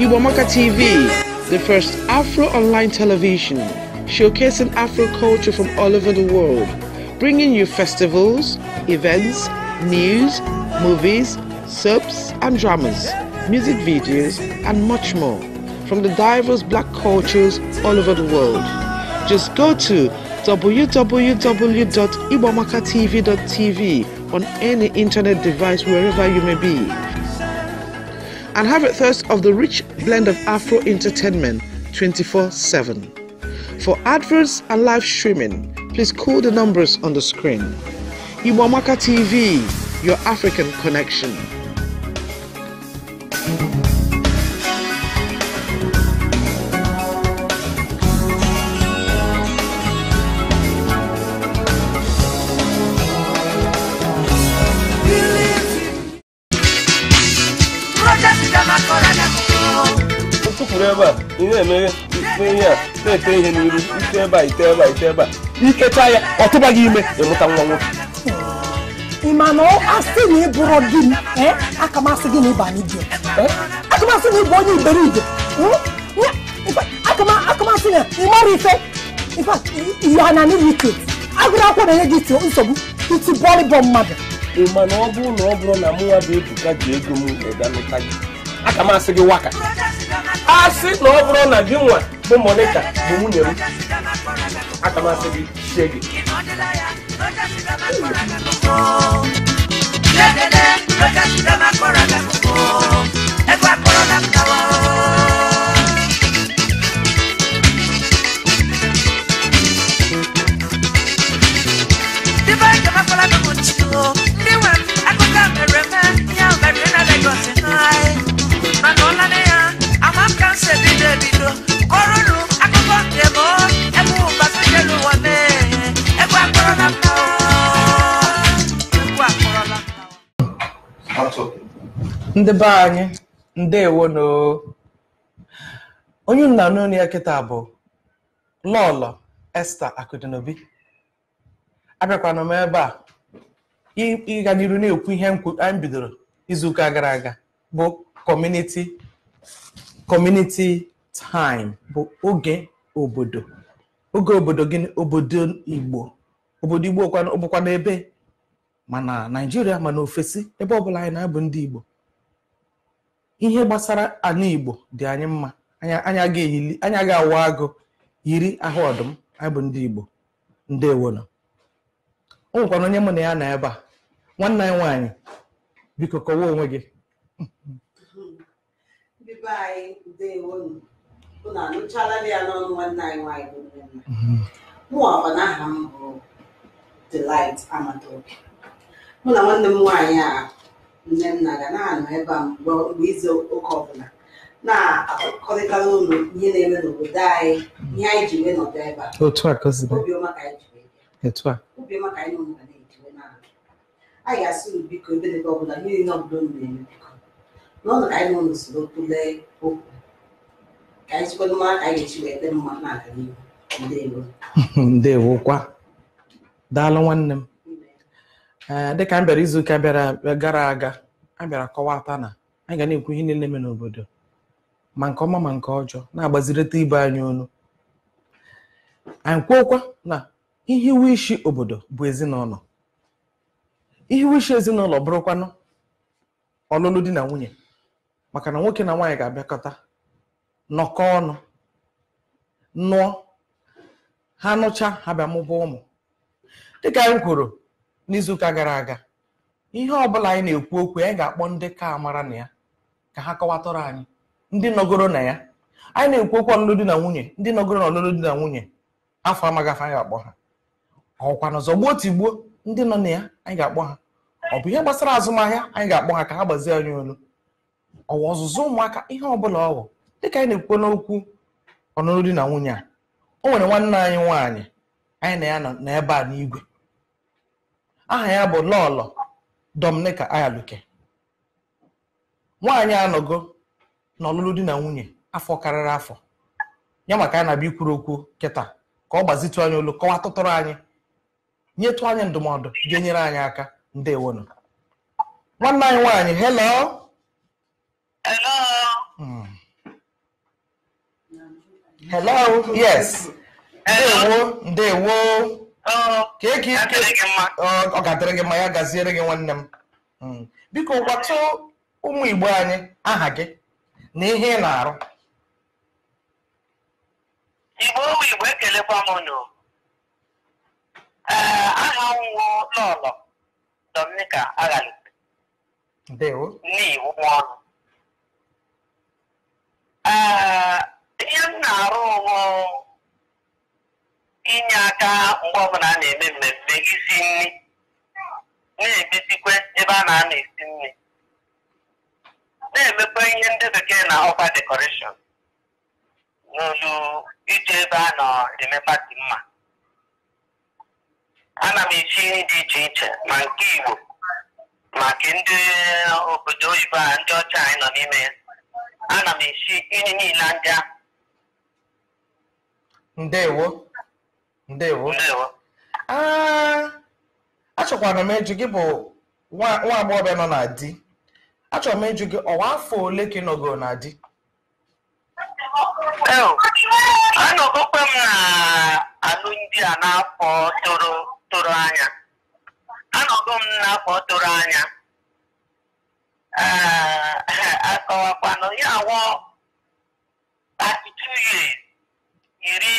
Iwamaka TV, the first Afro online television, showcasing Afro culture from all over the world, bringing you festivals, events, news, movies, soaps and dramas, music videos, and much more from the diverse black cultures all over the world. Just go to www.ibomakatv.tv on any internet device wherever you may be and have a thirst of the rich blend of Afro entertainment 24 7. For adverts and live streaming, please call the numbers on the screen. Iwamaka TV, your African connection. ihe emeghe ife ihe a na-ete ihe n'iru ite ebe a ite ebe a ite ebe a ikecha ya ọ tụba gị ime ịmụta nwa nwoke ị ma na asị na ịbụrụ di m aka m asị gị na ịba n'ibia aka m asị na ịbụ onye iberibe aka na ị mara ife ihe ana n'iru ike agụrụ akwụkwọ na-enye gị nsogbu iti bọlịbọ mmadụ ị ma na ọ bụrụ na ọ bụrụ na mụnwa bụ ebuka ji ego m ịga nụta gị aka m asị gị waka asị na ọ bụrụ na gị nwa bụ monika bụ nwunye m aka m gị chie gị Legede, legede, na ndị be anyị ndewo no onye nna n'onye ya kịta bụ lọlọ esta akụdinobi abịakwana m ebe a ịga n'iru na-ekwu ihe anyị bidoro izuụka gara aga bụ kọmuniti kọmuniti time bụ oge obodo oge obodo gịnị obodo igbo obodo igbo bụkwa n'ebe mana naijiria mana ofesi ebe ọbụla anyị na-abụ ndị igbo ihe gbasara ana igbo dị anyị mma anya ga-awa agụ yiri ahụ ọdụm anyị bụ ndị igbo ndewono o nwekwana onye mụ na ya na ebe a nwanne anyị nwaanyị biko kọwa onwe gị unu anụchala ya n'ọnụ nwanne anyị nwaanyị mụọkwa na aha bụ Delight Amadobi mụ na nwanne m nwaanyị a nne na ga na-anọ ebe a mgbe izu ụka ọbụla na-akọrịtara ụlọ ihe na-eme n'obodo anyị ihe anyị ji wee nọdụ ebe a ka anyị na-ejiwe anyị ga-asị unu biko ebe ọ ọbụla niile ọbụla unu na-eme biko n'ọnụ ka anyị soro kwulee anyị aka wee ndewo kwa daalụ nwanne m eh, dịka m bịara izuụka bịara eh, gara aga a bịara kọwata na anyị ga na-ekwu ihe niile eme n'obodo ma nke ọma ma nke ọjọọ na-agbazirịta ibe anyị ọnụ anyị kwuokwa na ihe iwu isi obodo bụ ezinụlọ ihe iwu isi ezinụlọ bụrụkwanụ ọlụlụ di na nwunye maka na nwoke na nwaanyị ga-abịakọta nọkọ ọnụ nụọ ha nụcha ha bịa mụba ụmụ dịka anyị kwuru n'izuụka gara aga ihe ọbụla anyị na-ekwu okwu anyị ga-akpọ ndị ka amara na ya ka ha kọwatọrọ anyị ndị nọgoro na ya anyị na-ekwu okwu ọlụlụ di na nwunye ndị nọgoro na ọlụlụ di na nwunye afọ amaghị afọ anyị ga-akpọ ha ọkwana zọgbuo tigbuo ndị nọ na ya anyị ga-akpọ ha ọ bụ ihe gbasara azụmahịa anyị ga-akpọ ha ka ha gbazie anyị olu ọwa ọzụzụ ụmụaka ihe ọbụla ọwụ dịka anyị na-ekwu n'okwu ọnụnụ di na nwunye a o nwere nwanne anyị nwaanyị anyị na ya na ebe a n'igwe aha ya bụ lọlọ dominika Ayaluke nwaanyị anọgo na ọlụlụ di na nwunye afọ karịrị afọ ya maka ya na-abịa ikwuru okwu kịta ka ọ gbazitụ anyị olu kọwa tụtụrụ anyị nyetụ anyị ndụmọdụ ga-enyere anyị aka ndewonu nwanne anyị nwaanyị hello hello hello yes ndewo ndewo oh, e oh, ọ ga-adịrị gị ma ya gaziere gị nwanne m hmm. biko gwata ụmụ igbo anyị aha gị na ihe ị na-arụ igbo ụmụ igbo ekelekwa m ee eh, aha nwụọ lọlọ dominica ndewo n'iwu ọnụ eh, ihe m na-arụ bụ inye aka mgbe ọbụla a na-eme mmemme isi nri na-edozikwe ebe a na-ana esi nri na-emekwa ihe ndị bekee na ọkwa decoration n'olu ije ebe a na-eme pati mma ana m echi nri dị iche iche ma nke Igbo maka ndị obodo oyibo a ndị ọcha anyị nọ n'ime ya ana m echi nri niile ndị ahụ ndewo ndewo achọkwara m ịjụ gị bụ nwa agbọghọbịa nọ na di achọrọ m ịjụ gị ọwa afọ ole ka ị nọgoro na di anọgokwe m na alụmdi a n'afọ toro anya anọgo m n'afọ toro anya akọwakwanụ ya awọ 32 years iri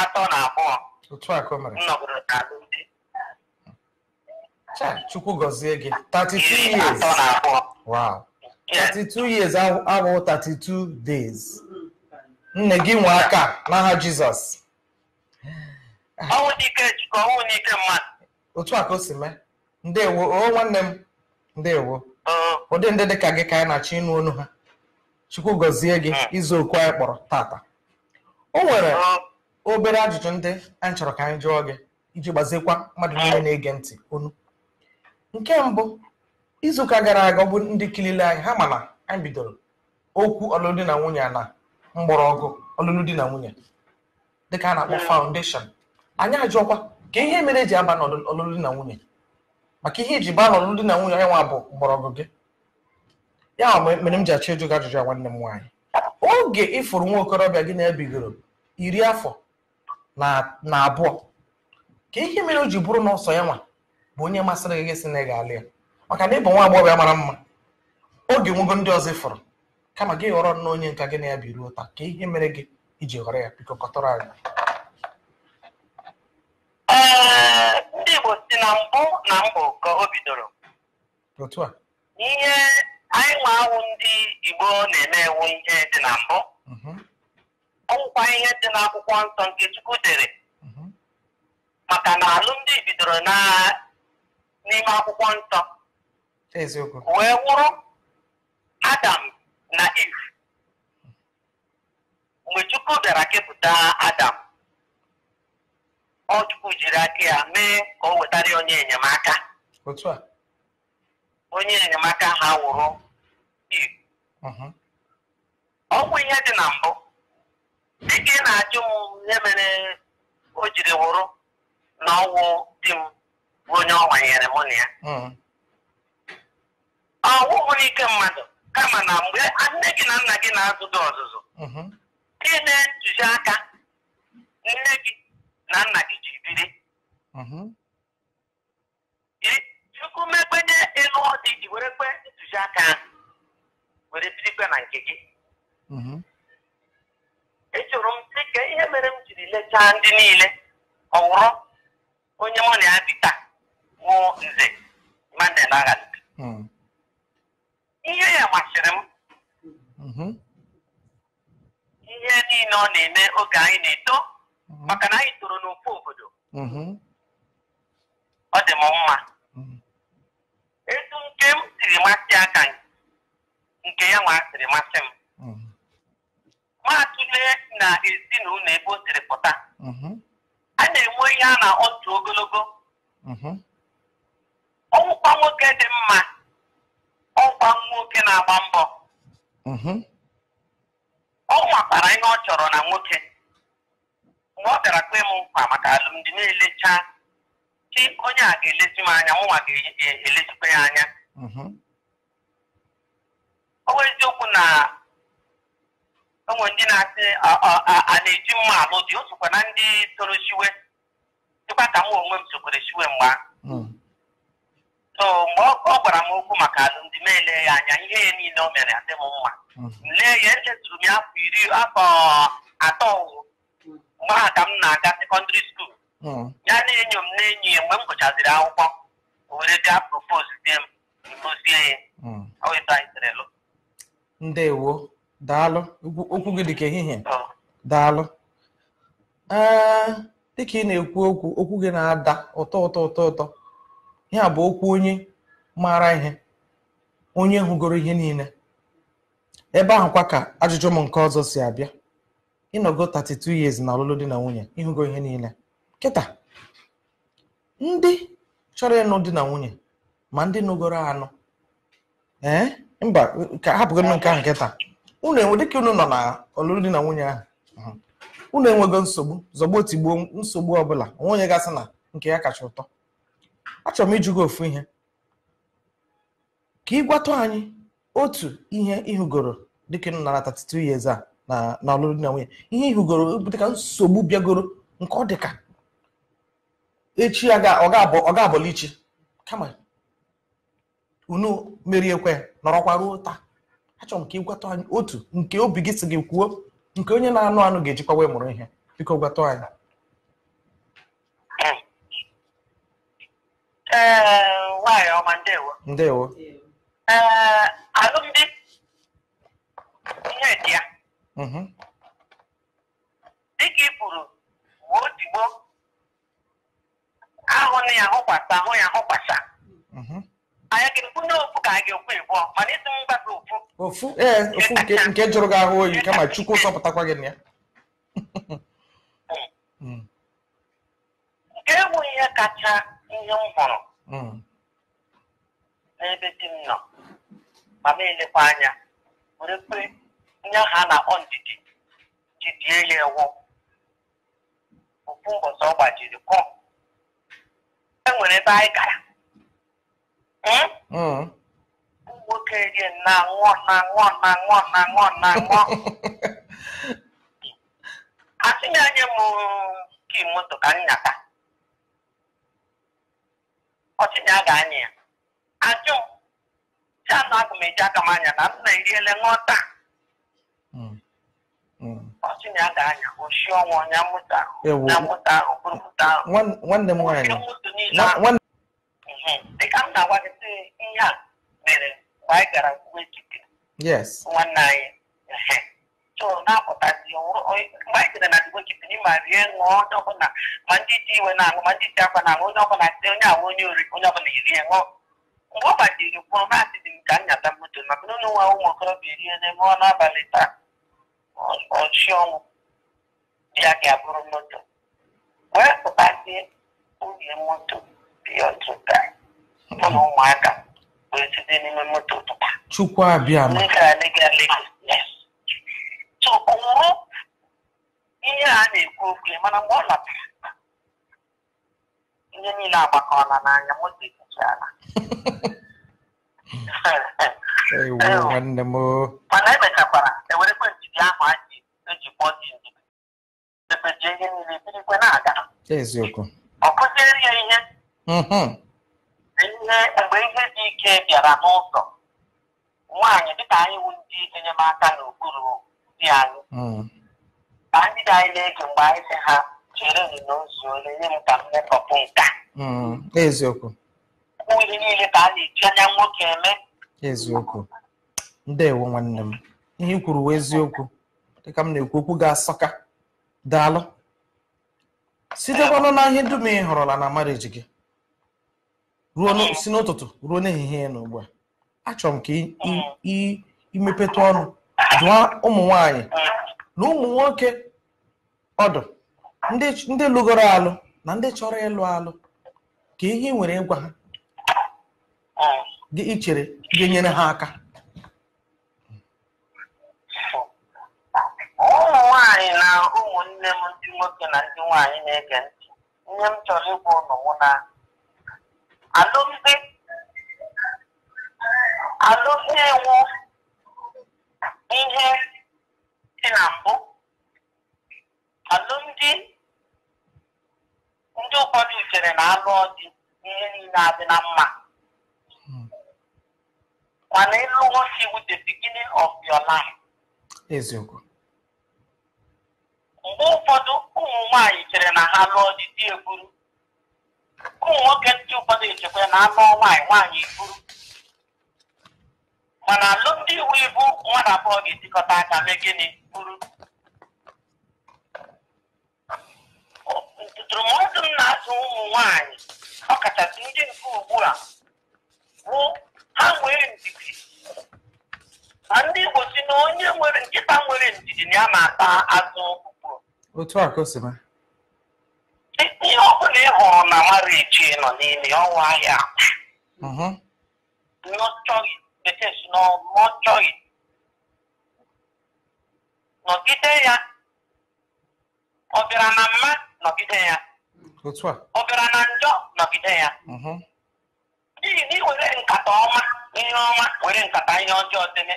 atọ na abụọ nọgoro na alụmdi chukwu gọzie gị 32 years wow 32 years abụghị 32 days nne gị nwe aka n'aha jizọs ọnwụ n'ike jikọ ọnwụ n'ike mmadụ otu a ka o si mee ndewo o nwanne m ndewo ụdị ndị dịka gị ka anyị na-achọ ịnụ onu ha chukwu gọzie gị hmm. izu okwu anyị kpọrọ tata o nwere obere ajụjụ ndị anyị chọrọ ka anyị jụọ gị iji gbazekwa mmadụ niile na-ege ntị onu nke mbụ izuụka gara aga ọ bụ ndị kilile anyị ha mana anyị bidoro okwu ọlụlụ na nwunye na mgbọrọgwụ ọlụlụ di na nwunye dịka a na-akpọ faundeshọn anyị ajụọkwa ka ihe mere eji aba n'ọlụlụ di na nwunye maka ihe iji e baa n'ọlụlụ di na nwunye onye nwa bụ mgbọrọgwụ gị ya mere m ji achọ ịjụ gị ajụjụ ya nwanne m nwaanyị oge ịfụrụ nwa okorobịa gị na-ebigoro iri afọ na abụọ ka ihe mere o ji bụrụ na ya nwa bụ onye masịrị gị sị na ga ya maka na ịbụ nwa agbọghọbịa mara mma oge nwego ndị ọzọ ịfụrụ kama gị ghọrọ na onye nka gị na ya biruo taa ka ihe mere gị iji ghọrọ ya biko kọtọrọ anyị ndị Igbo si na mbụ na mbụ ka o bidoro anyị nwe awụ ndị igbo na-eme ewu ihe dị na mbụ mhm. ọgwụkwa ihe dị n'akwụkwọ nsọ nke chukwu dere mhm. maka na alụmdi bidoro n'ime akwụkwọ nsọ wee wụrụ adam na iv mgbe chukwu bịara kepụta adam ọ chukwu jiri aka ya mee ka o wetara onye enyemaka onye enyemaka ha wụrụ ọgwụ ihe dị na mbụ ka ị na-ajụ m ihe mere o jiri wụrụ na ọnwụ di m bụ onye ọ nwanyere mụ na ya ọ bụrụ ike mmadụ kama na mgbe nne gị na nna gị na-azụ gị ọzụzụ gị na aka nne gị na nna gị ji biri chukwu mekpenye ịlụ ọdị were kpe ntụziaka ahụ were birikwa na nke gị echọrọ m dị ka ihe mere m jiri lechaa ndị niile ọwụrụ onye mụ na ya taa oh, nze Mandela Agali mm. ihe ya masịrị m mm-hmm. ihe niile ọ na-eme oge oh, anyị na-eto mm-hmm. maka na anyị toro n'ofu obodo ọ dị m mma mm-hmm. oh, etu eh, nke m siri masị aka nke nke ya nwa masị m mm-hmm. nwatụle na ezinụlọ ebe o siri pụta mm-hmm. a na-enwe ihe a na otu ogologo mm-hmm. ọwụkwa nwoke dị mma ọgwa nwoke na-agba mbọ ọ nwakwara ihe ọ chọrọ na nwoke mgbe ọ bịara kwe m nkwa maka alụmdi na-elecha chi onye a ga-elezi m anya mụnwa ga-elezikwa e-, e-, ya anya ọnwa eziokwu na onwe ndị na-asị a na-eji mma alụ dị osokwa na ndị toro chiwe, dịkwa ka m onwe m sokwere chiwe mgbe hmm. so mgbe ọ gwara m okwu maka alụmdi m ele ya anya ihe ya niile o mere adị m mma hmm. lee ya echetụrụ m ya afọ iri afọ atọ mgbe ha ka m na-aga sekọndịrị skuul hmm. ya na-enyo m na enyi ya mgbe m gụchaziri akwụkwọ o were bịa propos m dozie ya oeto anyị tere lụ Ndewo, daalụ. Okwu gị dịka ehihie. Ah. Daalụ. Ee, dịka ị na-ekwu okwu, okwu gị na-ada ụtọ ụtọ ụtọ ụtọ. ya bụ okwu onye maara ihe, onye hụgoro ihe niile. Ebe ahụkwa ka ajụjụ m nke ọzọ si abịa. Ịnọgo 32 years na ọlụlụ di na nwunye, ịhụgo ihe niile. Kịta, ndị chọrọ ịnụ di na nwunye ma ndị nụgoro anụ ee mba ka hapụgodị nke ahụ taa, unu enwe dịka unu nọ na ọlụlụ na nwunye ahụ unu enwego nsogbu zọgbo tigbuo nsogbu ọbụla nwunye gasị na nke ya kacha ụtọ achọrọ m ịjụ gị ofu ihe ka ị gwatụ anyị otu ihe ịhụgoro dịka unu nara 32 years a na ọlụlụ na nwunye ihe ịhụgoro dịka nsogbu bịagoro nke ọ dịka echi ọ ga-abọlichi kama unu meriekwe nọrọkwa ruo taa achọrọ m ka ịgwata anyị otu nke obi gị si gị kwuo nke onye na-anụ anụ ga-ejikwa wee mụrụ ihe biko gwata anyị nwaanyị ọma ndewo ndewo alụmdi ihe dị ya dịka ị kwuru ma otigbo ahụ na ya ahụkwasa ahụ ya ahụkwasa mm-hmm. ofu ee ofu e eh, nke jụrụ gị ahụ oyi kama chukwu sọpụtakwa gị na ya nke bụ ihe kacha ihe m hụrụ hmm. n'ebe dị m nọ ma m elekwa anya were kpe ha na ọ ndidi jidie ya ewu ofu ụbọchị ọ gbajiri kọ e ebe anyị gara ụmụ nwoke gị na-aṅụ na-aṅụ na-aṅụ na-aṅụ na-aṅụ asị m anya m moto ka nnyata ọchịnya ga-anya ya ajụ ya na agụ m eji aka m anya na m na-eriele ṅụta ọchịnya ga-anya oshi ọnwa onye mmụta ahụ nwanne m nwaanyị dịka m na-agwa gị sị ihe a mere mgbe anyị gara nkwuwe chike nwanne anyị so na-apụtazi mgbe anyị gara na dịgbo chike n'ime rie ṅụọ onye ọbụla ma ndị ji iwe na-aṅụ ma ndị ji akwa na-aṅụ onye ọbụla sị onye ahụ onye ori oh, onye ọbụla erie ṅụọ mgbe ọ gbajiri gwụrụ maasị dị m ka nnyata moto maka na ụlọ nwa ụmụ okorobịa erie n'ebe ọ n'abalị taa ọchị ọnwụ ya ga-abụrụ moto wee pụtazie nwunye moto bịa ọtụta ya ụmụaka wee site n'ime moto pụta chukwu abịa ma so o nwụrụ ihe a na-ekwu okwu mana mgbe ọ natara ihe niile agbakọla n'anya moto ekwuchiala mana emechakwara ewerekwe njide ahụ anyị eji kpọọ dị ndidi ebejie ihe niile birikwe na-aga ọ kụziere ya ihe mhm. ihe mgbe ihe dị ike bịara n'ụzọ nwanyị dịka anyị wu ndị enyemaka n'okpuru di anyị hmm. ka ndị dị anyị na-ege mgbe anyị sị ha chere m ole nye m ka m mekọpụ nka hmm. eziokwu bụ ihe niile ka a na-eji anya nwoke eme eziokwu ndewo nwanne m ihe i kwuru wee eziokwu dịka m na-ekwu okwu ga-asọka daalụ sitekwanụ na ihe dum ị hụrụla na mariji gị ruo si n'ụtụtụ ruo n'ehihie na ugbu a achọrọ m ka imepeta ọnụ dụọ ụmụ nwanyị na ụmụ nwoke ọdụ ndị lụgoro alụ na ndị chọrọ ịlụ alụ ka ihe nwere ịgwa ha gị ichere ga-enyere ha aka ụmụ nwanyị na ụmụnne m ndị nwoke na ndị nwanyị na-ege ntị ihe m chọrọ ịgwa ụnụ na alụmdi alụmdi ihe dị na mbụ alụmdi ndị ụfọdụ chere na alụ ọdị ihe niile adị na mma mana ịlụ nwoke iwu the beginning of your life eziokwu mgbe ụfọdụ ụmụ nwanyị chere na ha lụọ dị di eburu ụmụ nwoke ndị ụfọdụ echekwa na anụ nwaanyị nwaanyị iburu mana alụmdị iwu ibu nwa na abụọ ga-etikọta aka mee gịnị bụrụ ntụtụrụmọdụ m na atụ ụmụ nwaanyị ọkachasị ndị nke ugbu a bụ ha nwere ndidi na ndị Igbo si na onye nwere nkịta nwere ndidi na ya na-ata azụ otu a ka o si mee ihe ọbụla ị hụrụ na ichie nọ n'ime ọnwa ahịa mm-hmm. nọchọghị nọgide ya ọ bịara na mma nọgide ya ọ bịara na njọ nọgide ya mm-hmm. n'ihi na iwere nkata ọma ihe ọma were nkata ihe ọjọọ deme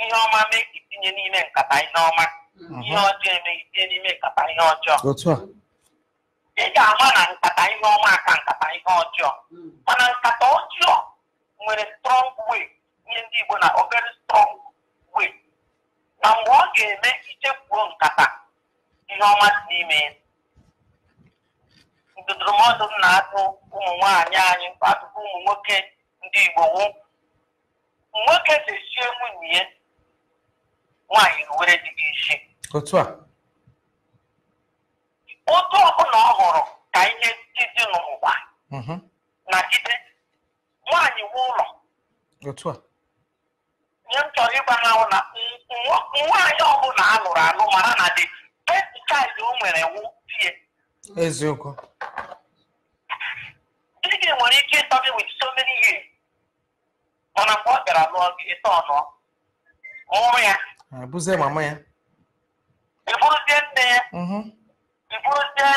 ihe ọma mee ka itinye n'ime nkata ihe ọma ihe mm-hmm. ọjọọ emeghị tinye n'ime nkata ihe ọjọọ nwere strong way nye ndị Igbo na obere strong way na mgbe ọ ga-eme ichekwuo nkata ihe ọma dị n'ime ndụdụrụmọdụ m na-atụ ụmụ nwaanyị anyị atụkwa ụmụ nwoke ndị Igbo wụ nwoke ga nwunye ya nwaanyị were dị gị isi otu a ọbụla ọ hụrụ ka ihe dị n'ụwa mhm. na nwaanyị nwe ụlọ nye m chọrọ ịgwa ha na nwaanyị ọbụla a nụrụ anụ mara na dị best child o nwere wụ tie eziokwu di nwere ike ịtọbi gị with so mana mgbe ọ bịara lụọ gị ịtọ ọnụ mụrụ ya ebuzie mama ya eburuzie nne ya eburuzie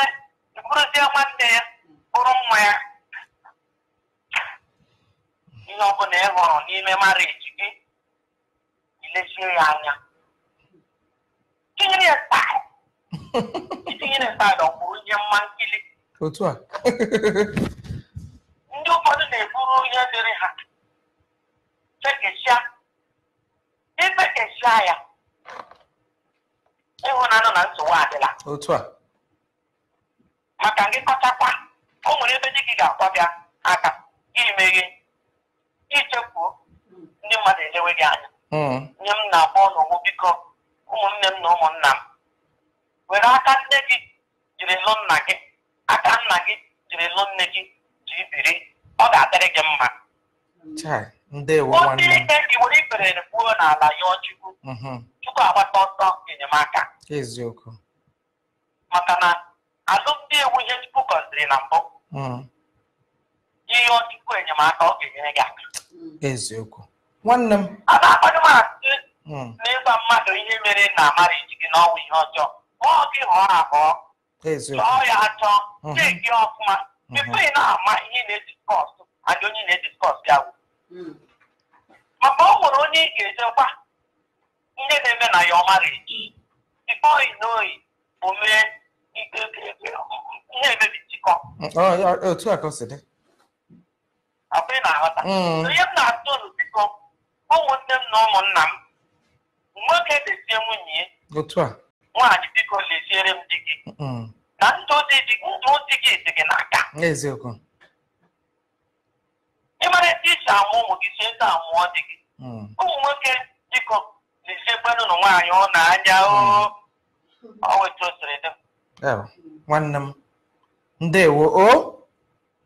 mhm. nwanne ya bụrụ nwa ya ihe ọbụla ị hụrụ n'ime mariji gị ilezie ya anya tinyere ya staịl ọ ihe mma nkili otu a ndị ụfọdụ na-eburu ihe dịrị ha fekesịa ifekesịa ya ịhụnanụ na nsogbu adịla otu a maka ngịkọtakwa o nwere ebe dị gị ga-akwabịa aka gị meghe ichekwuo ndị mmadụ ejewe gị anya hmm. nye m na-akpọ n'ụgbọ biko ụmụnne m na ụmụnna m were aka nne gị jiri lụ nna gị aka nna gị jiri lụ nne gị ji biri ọ ga-adịrị gị mma ndị ike gị were ikperere gbuo n'ala ya ọchukwu mm-hmm. chukwu agbata ọsọ enyemaka eziokwu maka na alụmdi ewu ihe chukwu gọziri na mbụ hmm. ihe ọchukwu enyemaka ọ ga-enyere gị aka Mm. eziokwu nwanne m a na na ịgwa mmadụ ihe mere na amara ejighi gị ọnwụ ihe ọjọọ kpọọ gị hụọ abụọ chọọ ya achọ hmm. chee gị ọfụma tupu hmm. ị na-ama ihe na-ediskọs adị onye na-ediskọs ya wu mm. maka ọ nwere onye ị ga-ejekwa ndị na-eme na ya ọmara eji bifọị n'oyi bụ mee na-emebi njikọ hmm. otu akwa ị na-aghọta ihe m mm. na-atụ ụlọ biko ụmụnne m na ụmụnna m nwoke lezie nwunye nwaanyị biko leziere m di gị eh, eh, mm. oh, na ndụ di gị dị gị n'aka ịmara ete isi amụ ụmụ gị si eze amụọ di gị ụmụ nwoke biko leziekwanụ ụlọ nwaanyị ọ na-anya o oh. mm. oh, wetu o siri nwanne m ndewo o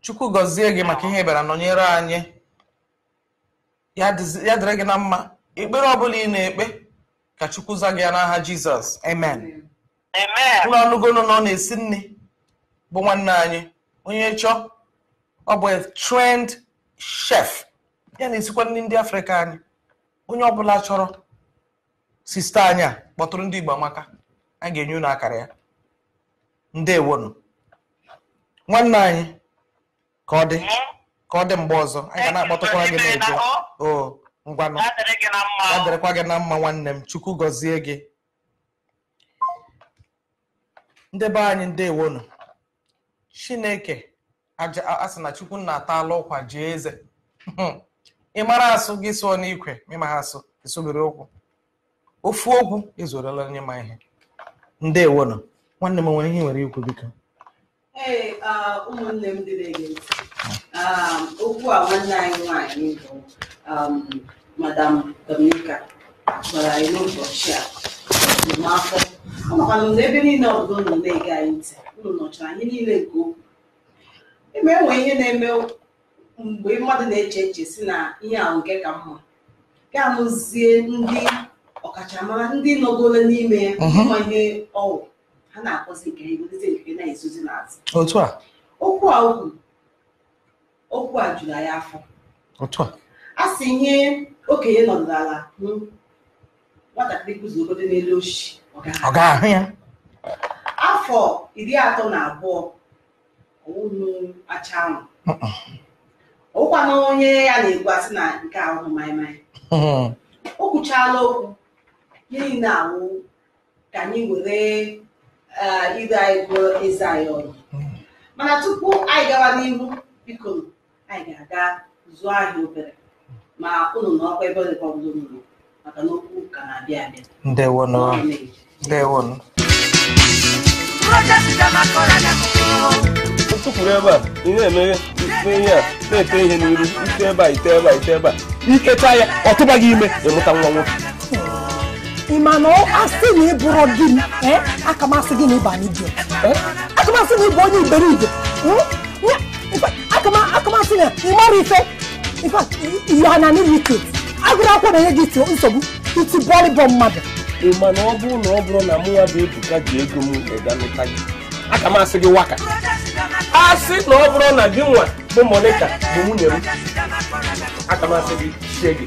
chukwu gọzie gị maka ihe bịara nọnyere anyị ya dịrị gị na mma ekpere ọbụla ị na-ekpe ka chukwu za gị ya n'aha jizọs amen ụlọ ọnụgonu na ọ na-esi nne bụ nwanne anyị onye chọọ ọ bụ trend chef ya na-esikwa nri ndị afrịka anyị onye ọbụla chọrọ sista anyị a kpọtụrụ ndị igbo amaka a ga-enye unu akara ya ndewonu nwanne anyị ka ọ dị ka ọ dị mgbe ọzọ anyị ga na-akpọtụkwara gị na o ngwanụ ya gị na mma nwanne m chukwu gọzie gị ndị be anyị ndewonu chineke asị na chukwu na-atala ụkwa jee eze hmm. ị mara asụ gị sụọ n'ikwe ịma asụ ịsụbere okwu ofu okwu ezorela onye ma ihe ndewonu nwanne m nwere ihe nwere ikwu biko ee ụmụnne m dị na-ege ntị okwu a nwanne anyị nwanyị bụ um, madam dominica gwara anyị n'ụbọchị a afọ ọnọkwanụ na ebe niile ọbụla unu na-ege anyị ntị unu nọchara anyị niile nke okwu ebe enwe ihe na-eme mgbe mmadụ na-eche eche si na ihe ahụ nke ka mma ga-amụzie ndị ọkachamara ndị nọgoro n'ime ya ọgwụ. Uh-huh. ihe ọwụ ha na-akpọzi nke egote nke na-ezozi n'azụ otu a okwu a okwu okwu a juru ya afọ otu a a sị nye okenye nọdụrụ ala hụ nwatakịrị kụzi obodo n'elu oshi ọ ga-ahụ ya afọ iri atọ na abụọ ọwụnụ acha ahụ ụkwanụ onye ya na-egwu asị na nke ahụ maịmaị mm-hmm. o kwuchaala okwu gịnị na-awụ ka anyị were ide anyị bụrụ eze anyị ọrụ mana tupu anyị gawa n'ihu biko anyị ga-aga zụọ ahịa obere ma ụnụ na ọkwa ebe dịkwa ọbụla maka na okwu ka na-abịa abịa ndewonụ tụpụrụ ebe a ị na-emeghe ihe a na-ete ihe n'iru ite ebe a ite ebe a ite ebe a ikecha ya ọ tụbaghị ime ịmụta nwa nwoke ị ma na asị na ịbụrụ di eh, m aka m gị na ịba n'idio eh, aka m na ịbụ onye iberibe hmm, aka m asị na ị mara ife ihana n'ilike agụrụ akwụkwọ na-enye gị iti nsogbu iti bọlịbọ mmadụ ị ma na ọ bụrụ na ọ bụrụ na mụ nwa bụ Ebuka ji ego m eganụta gị aka gị waka asị na ọ bụrụ na gị nwa bụ Monica bụ nwunye m aka gị chie gị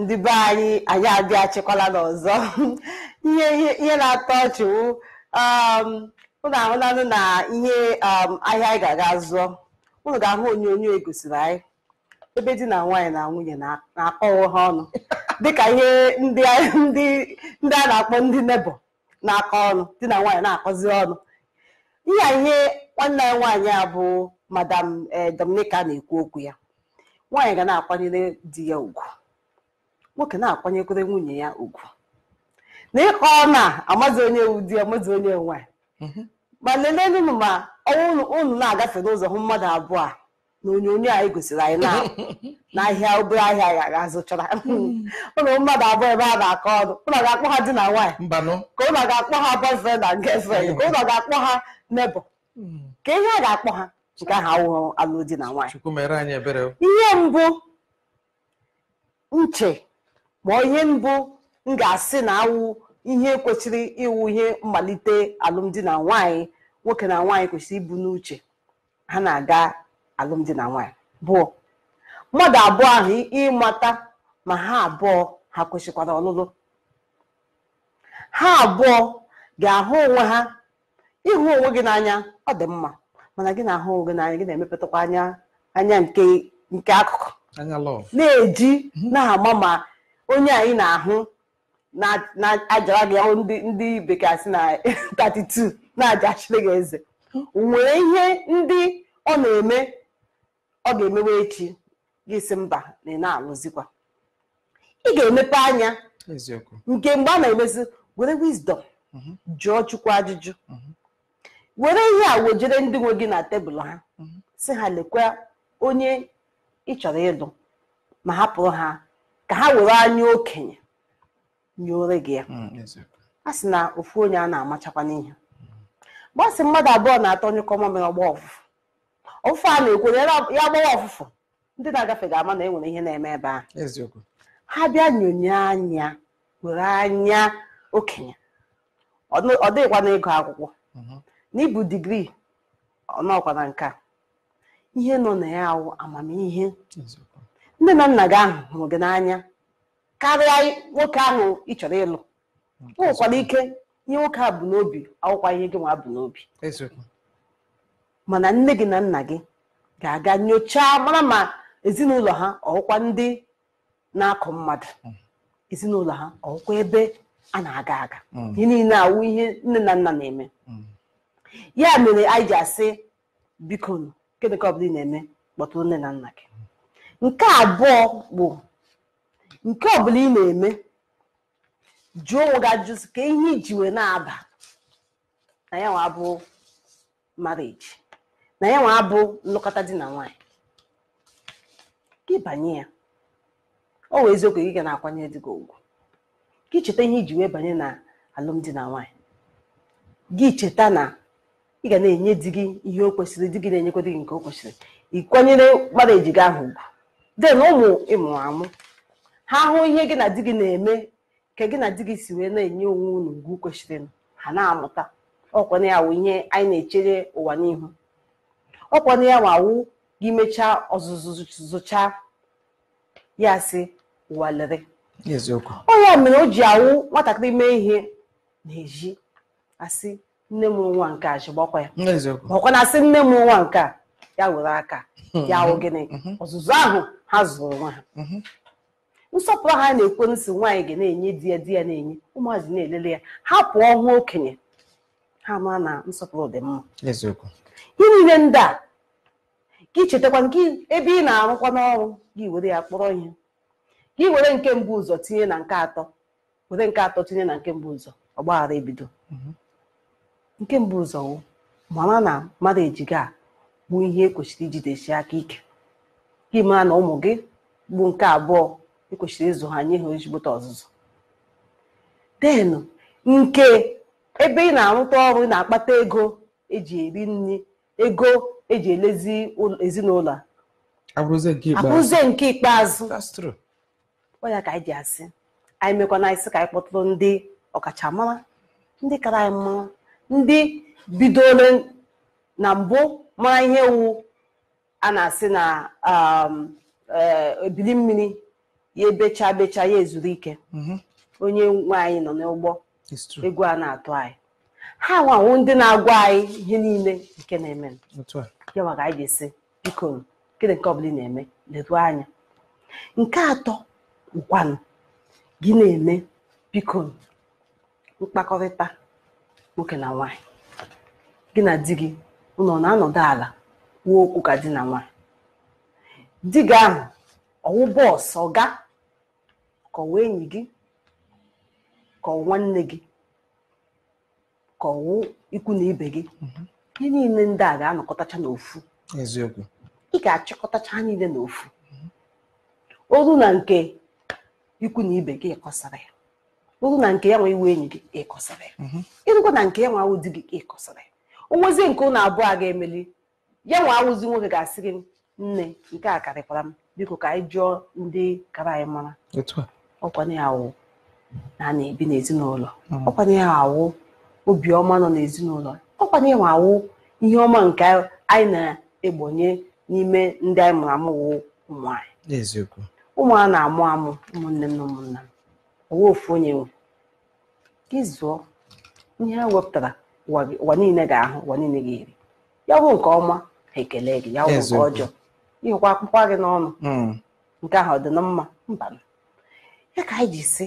ndị be anyị anyị adị achịkwala n'ọzọ ihe na-atọ ọchị ụnụ um, ahụlanụ na ihe um, ahịa anyị ga-aga zụọ ụnụ ga-ahụ onyonyo egosiri anyị ebe di na nwaanyị na nwunye na-akọwa ha ọnụ dịka ihe ndị a na-akpọ ndị nebo na-akọ ọnụ di na nwaanyị na-akọzi ọnụ ihe ihe nwanne anyị nwaanyị a bụ madam eh, Dominica na-ekwu okwu ya nwaanyị ga na-akwanyere di ya ugwu nwoke na-akwanyekwere nwunye ya ugwu na ịkọ na amazi onye ụdị amazi onye nwanyị mhm. ma lelee unu ma ọnwa na-agafe n'ụzọ hụ mmadụ abụọ a na onyonyo anyị e gosiri anyị n'ahịa obere ahịa ya ga-azụchara ụlọ mhm. mmadụ abụọ ebe a na-akọ ọnụ ụlọ ga-akpọ ha di na nwaanyị ka ụlọ ga-akpọ ha boyfriend na girlfriend ka ụlọ ga-akpọ ha nebo mhm. ka ihe a ga-akpọ ha nke ahụ awụghị alụmdi na nwaanyị ihe mbụ nche ma ihe mbụ m ga-asị na awụ ihe kwesịrị ịwụ ihe mmalite alụmdi na nwaanyị nwoke na nwaanyị kwesịrị ibu n'uche ha na-aga alụmdi na nwaanyị bụ mmadụ abụọ ahụ ịmata ma ha abụọ ha kwesịkwara ọlụlụ ha abụọ ga-ahụ onwe ha ịhụ onwe gị n'anya ọ dị mma mana gị na-ahụ onwe gị n'anya gị na-emepụtakwa anya nke akụkụ na-eji na-ama ma onye anyị na-ahụ na-ajara gị ahụ ndị bekee asị na 32 na-ajachiri gị eze nwere ihe ndị ọ na-eme ọ ga-emewe echi gị si mba na ị na ị ga-emepe anya nke mgbe a na-emezi were wisdom mhm. jụọ chukwu ajụjụ mhm. were ihe a wejere ndị nwe gị na tebụl ha mhm. si ha lekwa onye ị chọrọ ịlụ ma hapụrụ ha ka ha were anya okenye nyere gị ya mm, a sị na ofu onye a na-amachakwa n'ihe gbasị mmadụ abụọ na atọ onye kọma mere ọgba ọfụfụ ọfụfụ a na-ekwe ya gbawa ọfụfụ ndị na-agafe ga-ama na enwere ihe na-eme ebe ahụ ha bịa nyonye anya were anya okenye ọ dịghịkwa na akwụkwọ akwụkwọ mm-hmm. n'ịbụ digrii ọnọkwa na nke a ihe nọ na ya awụ amamihe nne na nna gị ahụ hụrụ gị n'anya karịa nwoke ahụ ị chọrọ ịlụ ụkwara ike ihe nwoke a bụ n'obi ihe gị nwa bụ n'obi mana nne gị na nna gị ga-aga nyochaa mara ma ezinụlọ ha ọkwa ndị na-akụ mmadụ hmm. ezinụlọ ha ọkwa ebe a na-aga aga hmm. ihe niile awụ ihe nne na nna na-eme hmm. ya mere anyị ji asị biko kedụ ka ọ bụla ị na-eme kpọtụrụ nne na nna gị nke abụọ bụ nke ọbụla ị na-eme jụọ onwe gị ajụjụ ka ihe iji wee na-aba na ya nwa abụ na ya nwa abụ nlụkọta di na nwanyị gị banye ya ọ wee eziokwu gị ga na-akwanyere gị ugwu gị cheta ihe iji wee banye na alụmdi na nwanyị gị cheta na ị ga na-enye di gị ihe o kwesịrị di gị na-enyekwa di gị nke o kwesịrị ị kwanyere gị ahụ ugwu den ụmụ ịmụrụ amụ ha hụ ihe gị na di gị na-eme ka gị na di gị si wee na-enye onwe unu ugwu kwesịrị ha na-amụta ọkwana ya wụ ihe anyị na-echere ụwa n'ihu ọkwana ya wụ gị mechaa ọzụzụ zụcha ya sị ụwa lere onye mere o ji awụ nwatakịrị mee ihe na-eji asị nne m nwa nke a ji ya ọkwana asị nne m nwa nke a ya were aka hmm, ya wụ hmm, gịnị hmm. ọzụzụ ahụ ha zụrụ nwa ha nsọpụrụ ha na-ekwe nsị nwaanyị ga na-enye di ya di ya na-enye ụmụazị na-elele ya ha pụọ nwa okenye ha mara na nsọpụrụ dị mma ihe niile ndị a ka ị chetakwa nke ebe ị na-arụkwa n'ọrụ gị were ya kpọrọ ihe gị were nke mbụ ụzọ tinye na nke atọ were nke atọ tinye na nke mbụ ụzọ ọgbaghara ebido nke mbụ ụzọ mara na mmadụ ejiga a bụ ihe ekwesịrị ijidesi aka ike gị mara na ụmụ gị bụ nke abụọ ekwesịrị ịzụ ha nye ha ejigbota ọzụzụ denụ nke ebe ị na-arụta ọrụ ị na-akpata ego eji eri nri ego eji elezi ezinụlọ abụrụzie nke ikpeazụ ọ ya ka anyị ji asị anyị mekwana anyị sị ka anyị kpọtụrụ ndị ọkachamara ndị kara anyị mma ndị bidoro na mbụ mara ihe wu a na-asị na um, eh, ebili mmiri ya ebecha becha ya ezuru ike mhm. onye nwe anyị nọ n'ụgbọ egwu a na-atụ anyị ha anwụ ndị na-agwa anyị ihe niile nke na-eme ya maka anyị ga-esi biko gịnị nke ọbụla ị na-eme leruo anya nke atọ ngwanụ gị na-eme biko mkpakọrịta nwoke na nwaanyị gị na di gị unu ọ na-anọdụ ala kwuo okwu ka di na nwa di gị ahụ ọwụ bọọsụ ọga ka ọwụ enyi gị ka ọwụ nwanne gị ka ọwụ ikwu na ibe gị ihe niile ndị a ga-anọkọtacha n'ofu eziokwu ị ga-achịkọtacha ha niile n'ofu oru na nke ikwu na ibe gị kọsara ya oru na nke ya nwe iwu enyi gị ịkọsara ya mhm. ịrụkwa na nke ya nwe awụ di gị ịkọsara ya onwezi nke ụnụ abụọ a ga-emeli ya nwa awụzi nwoke ga-asị gị nne nke a karịkwara m biko ka anyị jụọ ndị kara anyị mara ọkwana ya awụ na a na-ebi n'ezinụlọ hmm. ọkwana obiọma nọ n'ezinụlọ ọkwana ya ihe ọma nke anyị na-egbonye n'ime ndị anyị mụrụ amụ wụ ụmụanyị ụmụ na-amụ amụ ụmụnne m na ụmụnna m owe ofu onye nwe ịzụọ ihe ha wepụtara ụwa niile ga-ahụ ụwa niile ga-eri ya bụ nke ọma ha ekele gị ya bụ nke ọjọọ ihụkwa akpụkpọ gị n'ọnụ hmm. nke ahụ ọ dị na mma mba ya ka anyị ji si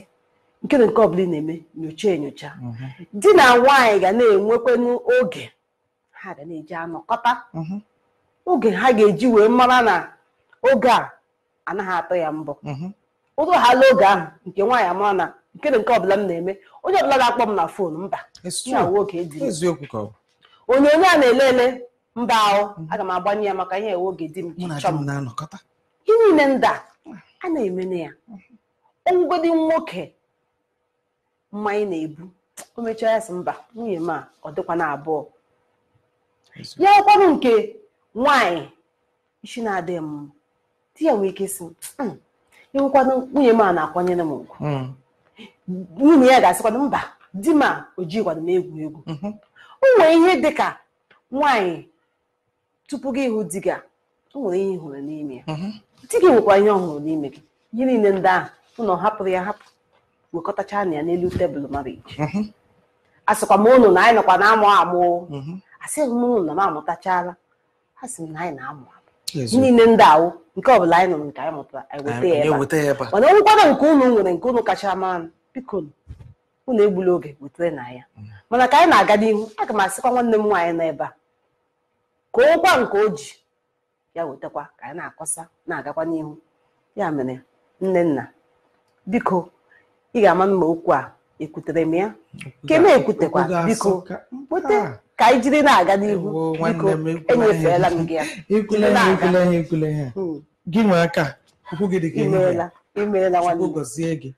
nke na nke ọ ị na-eme nyocha enyocha mhm. di na nwaanyị ga na-enwekwanụ oge ha ga na-eji anọkọta mhm. oge ha ga-eji wee mara na oge a anaghị atụ ya mbụ. Mhm. ụtụ hala oge ahụ nke nwaanyị amara na nkene nke ọbụla m na-eme onye ọbụla ga akpọ m na fon mba onyonyo a na-ele ele mba ahụ aga m agbanye ya maka ihe oge di m ihe niile ndị a na eme na ya onwugodi nwoke mmanya na-ebu o mechaa ya sị mba nwunye m a ọ dịkwa na abụọ ya kwanụ nke nwanyị isi na-adịghị m di ya nwee ike si mm, enwekwanụ nwunye m a na-akwanyere m ugwu nwunye ya ga asịkwa mba di ma o jighịkwado m egwu egwu mhm. o ihe dị ka nwaanyị tupu gị ịhụ di gị o nwere ihe ị hụrụ n'ime ya mhm. di gị nwekwa ihe ọ hụrụ n'ime gị ihe niile ndị ahụ ụnọ hapụrụ ya hapụ wekọtacha na ya n'elu tebụl mara mhm. iji asịkwa m ụnụ na anyị nọkwa na-amụ amụ asịghị m ụnụ na m amụtachala a sị m na anyị na-amụ niile ndị awụ nke ọ bụla anyị nụrụ nke anyị mụtara e eweta ya ebe a mana nkwado nke unu nwere nke unu kacha mara biko unu egbula oge wetere na ya mm. mana ka anyị na-aga n'ihu aga m asịkwa nwanne m nwaanyị nọ ebe a ka okwa nke o ji ya wetakwa ka anyị na-akọsa na-agakwa n'ihu ya mere nne nna biko ị ga-ama mma okwu a ekwutere m ya nke na-ekwutekwa biko weta ka anyị e jiri na-aga n'ihu biko enyefeela m e gị ya hmm. gị nwe aka ụkwụ gị dị ka imeela imeela nwanne gọzie gị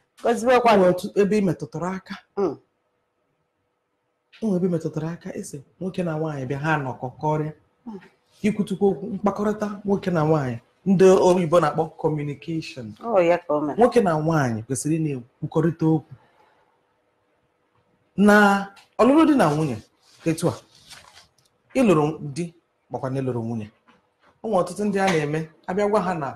ebe ị metụtara aka ụmụ hmm. ebe metụtara aka ese nwoke na nwaanyị bịa ha nọkọ kọrịa ikwutukwu hmm. okwu mkpakọrịta nwoke na nwaanyị ndị oyibo na-akpọ kọmunikeshọn oh, nwoke na nwaanyị kwesịrị ị na-ekwukọrịta okwu na ọlụlụ dị na nwunye etu a ịlụrụ di makwa na ịlụrụ nwunye ụmụ ọtụtụ ndị a na-eme abịa gwa ha na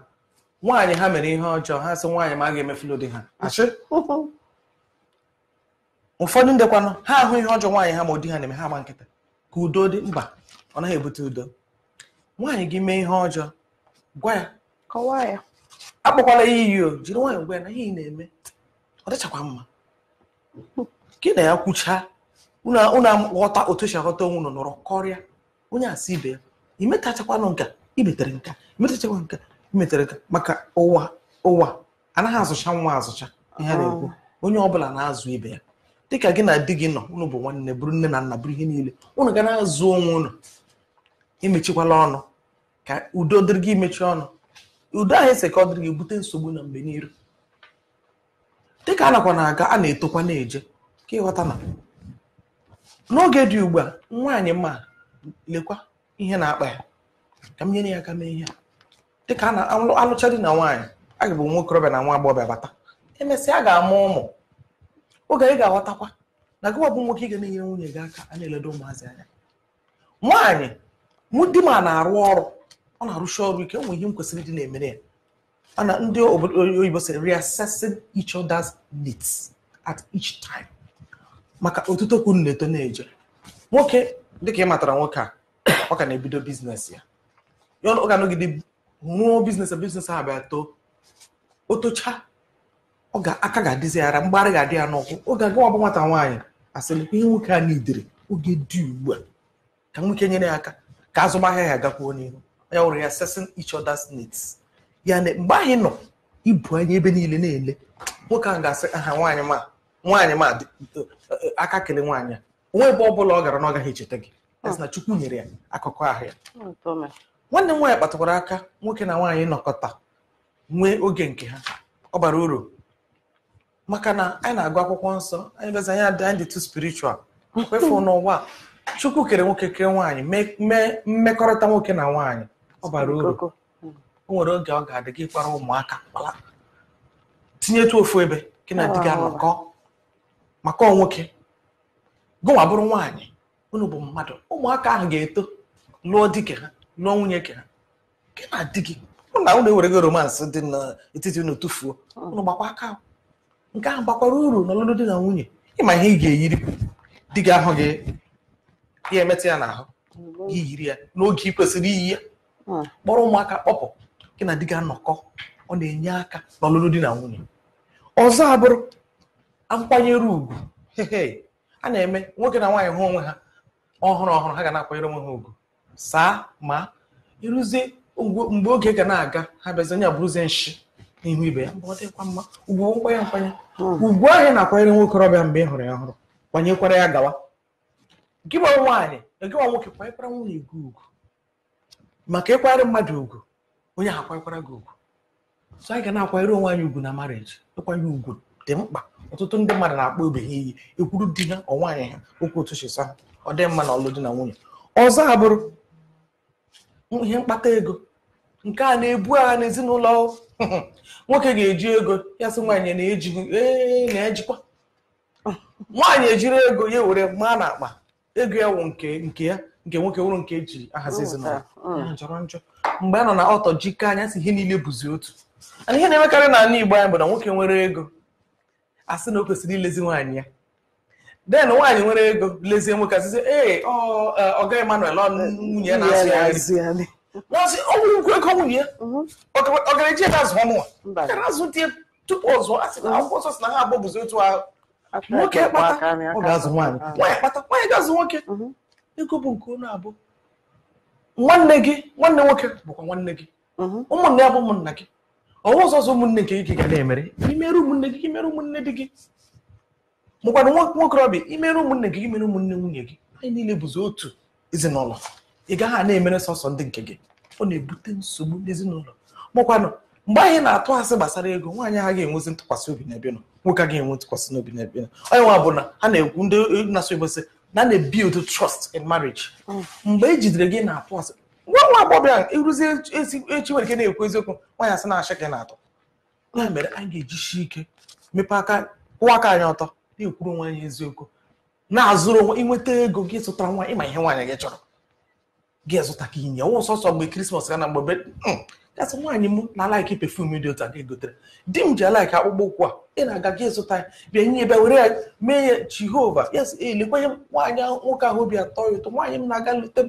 nwaanyị ha mere ihe ọjọọ ha sị nwaanyị ma a ga-emefulu di ha achị ụfọdụ ndekwanụ ha ahụ ihe ọjọọ nwaanyị ha ma ụdị ha na-eme ha agba nkịta ka udo dị mba ọ naghị ebute udo nwaanyị gị mee ihe ọjọọ gwa ya kọwaa ya akpọkwala ya iyi o jiri nwaanyị gwa ya na ihe ị na-eme ọ dịchakwa mma gị na ya kwuchaa unu ghọta otu esi aghọta onwe unu nọrọ kọrịa onye asị ibe ya imetachakwanụ nka imetere nka imetachakwa nka imetere nka maka ụwa ụwa anaghị azụcha nwa azụcha ihe na-ekwu ah. onye ọbụla na-azụ ibe ya dịka gị na di gị nọ unu bụ nwanne bụrụ nne na nna bụrụ ihe niile unu ga na-azụ onwe unu emechikwala ọnụ ka udo dịrị gị imechi ọnụ udo ahụ ese ka ọ dịrị gị bute nsogbu na mgbe n'iru dịka a nakwa na-aga a na-etokwa na-eje ka ịghọta na n'oge dị ugbu a nwaanyị ma lekwa ihe na-akpa ya ka m nyere ya aka mee ihe dịka a na-alụcha dị na nwaanyị a ga-abụ nwa okorobịa na nwa agbọghọbịa bata emesịa a ga-amụ ụmụ oge ị ga-aghọtakwa na gịwa bụ nwoke ị ga na-enyere nwunye gị aka a na-eledo ụmụazị anya nwaanyị mụ di m a na-arụ ọrụ ọ na-arụsi ọrụ ike nwe ihe m kwesịrị dị na-emere ya ana ndị oyibo sịrị reassessing each other's needs at each time maka otuto kwuru na-eto na-eje nwoke dịka ị matara nwoke a ọ ka na-ebido biznes ya ya ọ ga-anọgide rụọ biznes biznes ha bịa too otocha ọ ga aka ga-adịzi ara mgbarị ga-adị ya n'ụkwụ oge agawa bụ nwata nwaanyị asịlịkwa ihe nwoke a nidere oge dị ugbu a ka nwoke nyere ya aka ka azụmahịa ya agakwuo n'ihu ya wụrụ ya assessing each needs ya na mgbe anyị nọ ibu anya ebe niile na-ele nwoke ahụ ga-asị aha nwaanyị ma nwaanyị ma aka kele nwaanyị onwe ebe ọ bụla ọ gara na ọ gaghị echeta gị hmm. na chukwu nyere ya akụkọ ahụ ya hmm, nwanne m nwaanyị kpatakwara aka nwoke na nwaanyị nọkọta nwee oge nke ha ọ bara uru maka na anyị na-agụ akwụkwọ nsọ anyị bịazi anyị adị anyị dị tu spiritual kwefu n'ụwa chukwu kere nwoke kere nwaanyị mee mmekọrịta nwoke na nwaanyị ọ bara uru hmm. o nwere oge ọ ga-adị gị kpara ụmụaka kpala tinyetu ofu ebe gị na di gị anọkọ maka nwoke gụnwa bụrụ nwaanyị unu bụ mmadụ ụmụaka ahụ ga-eto lụọ dike ha lụọ nwunye ke ha gị na di gị ụna ewere gị romansị dị n'etiti unu tụfuo unu gbakwa aka nke ahụ gbakwara uru n'ọlụlụ di na nwunye ịma ihe ị ga-eyiri di gị ahụ gị ya emetụ ya n'ahụ yiri ya n'oge ị kwesịrị iyi ya hmm. kpọrọ ụmụaka kpọpụ gị na di gị anọkọ ọ na-enye aka n'ọlụlụ di na nwunye ọzọ abụrụ nkwanyere ugwu a na-eme nwoke na nwaanyị hụ onwe ha ọhụrụ ọhụrụ ha ga na-akwanyere onwe ha ugwu saa ma ịrụzie mgbe oge ga na-aga ha bịazi onye abụrụzie nshi n'ihu ibe ya mgbe ọ dịkwa mma ugwu nkwanye nkwanye ugwu hmm. ahụ na-akwanyere nwoke ọbịa mgbe ị hụrụ ya ọhụrụ kwanyekwara ya gawa gị nwa nwaanyị gịnwa nwoke kwanyekwara nwunye gị ugwu maka ịkwanyere mmadụ ugwu onye ahụ akwanyekwara gị ugwu so anyị ga na-akwanyere onwe anyị ugwu na marriage ịkwanye ugwu dị mkpa ọtụtụ ndị mmadụ na-akpọ obe ha iyi ekwuru di ha ọ nwaanyị ha okwu otu chisa ha ọ dị mma na ọlụ di na nwunye ọzọ abụrụ ihe mkpata ego nke a na-ebu agha n'ezinụlọ nwoke ga-eji ego ya sị nwaanyị na ee na-ejikwa nwaanyị ejiri ego ya were maa na akpa ego ya wụ nke nke ya nke nwoke wụrụ nke eji ahazi ezinụlọ njọrọ njọ mgbe a nọ na ọtọ jikọ anya sị ihe niile bụzi otu ana ihe na-emekarị n'ala Igbo anyị bụ na nwoke nwere ego asị na o kwesịrị ilezi nwaanyị ya den nwaanyị nwere ego lezie nwoke asịsị ee ọga e, Emmanuel nwunye ya na-asụ ya nri n'ọsị ọnwụ ukwu ego nwunye ya mhm. ọ gara eji ebe azụ ọnụnwa gara azụ di tupu ọzọ asị na mhm. akwụkwọ nsọ si na ha abụọ bụzi otu ahụ nwoke kpata ọ ga-azụ nwaanyị nwaanyị kpata nwaanyị ga-azụ nwoke mhm. ego bụ nke onye abụọ nwanne gị nwanne nwoke bụkwa nwanne gị ụmụnne ya bụ ụmụnna gị ọnwa ọzọ ọzọ ụmụnne nke gị ga na-emere imere ụmụnne gị imere ụmụnne dị gị mụkwara nwokorobịa imere ụmụnne gị imere ụmụnne nwunye gị anyị niile bụzi otu ezinụlọ ị gaghị a na-emere sọsọ ndị nke gị ọ na-ebute nsogbu n'ezinụlọ mụkwanụ mgbe anyị na-atụ asị gbasara ego nwaanyị a ga-enwezi ntụkwasị obi n'ebe nọ nwoke agaghị enwe ntụkwasị n'obi n'ebe nọ onye nwa bụ na ha na-ekwu ndị na in mm. mgbe e jidere gị na-atụ asị nwa nwa agbọghọ a ịrụzi echi nwere ike na-ekwu eziokwu nwanyị asị na-achị gị na-atọ ya mere anyị ga-ejishi ike mepe aka kwụwa aka anyị ọtọ na-ekwuru nwa anyị eziokwu na-azụrụ onwe ịnweta ego gị zụtara nwa ịma ihe nwaanyị gị chọrọ gị zụta ka inye nwa sọsọ mgbe krismas ga na mgbe gasị hmm, nwaanyị m na alaiki pefum dị otu a ga-egotere di m ji alaiki akpụkpọ ụkwụ a ị na-aga gị zụta ya bịa nye bịa were ya mee ya jehova yes elekwanye nwaanyị nwoke ahụ obi atọ ya ụtọ nwaanyị m na-aga lute